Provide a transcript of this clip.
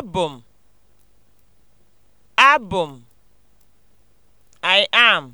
abụ m abụ m I am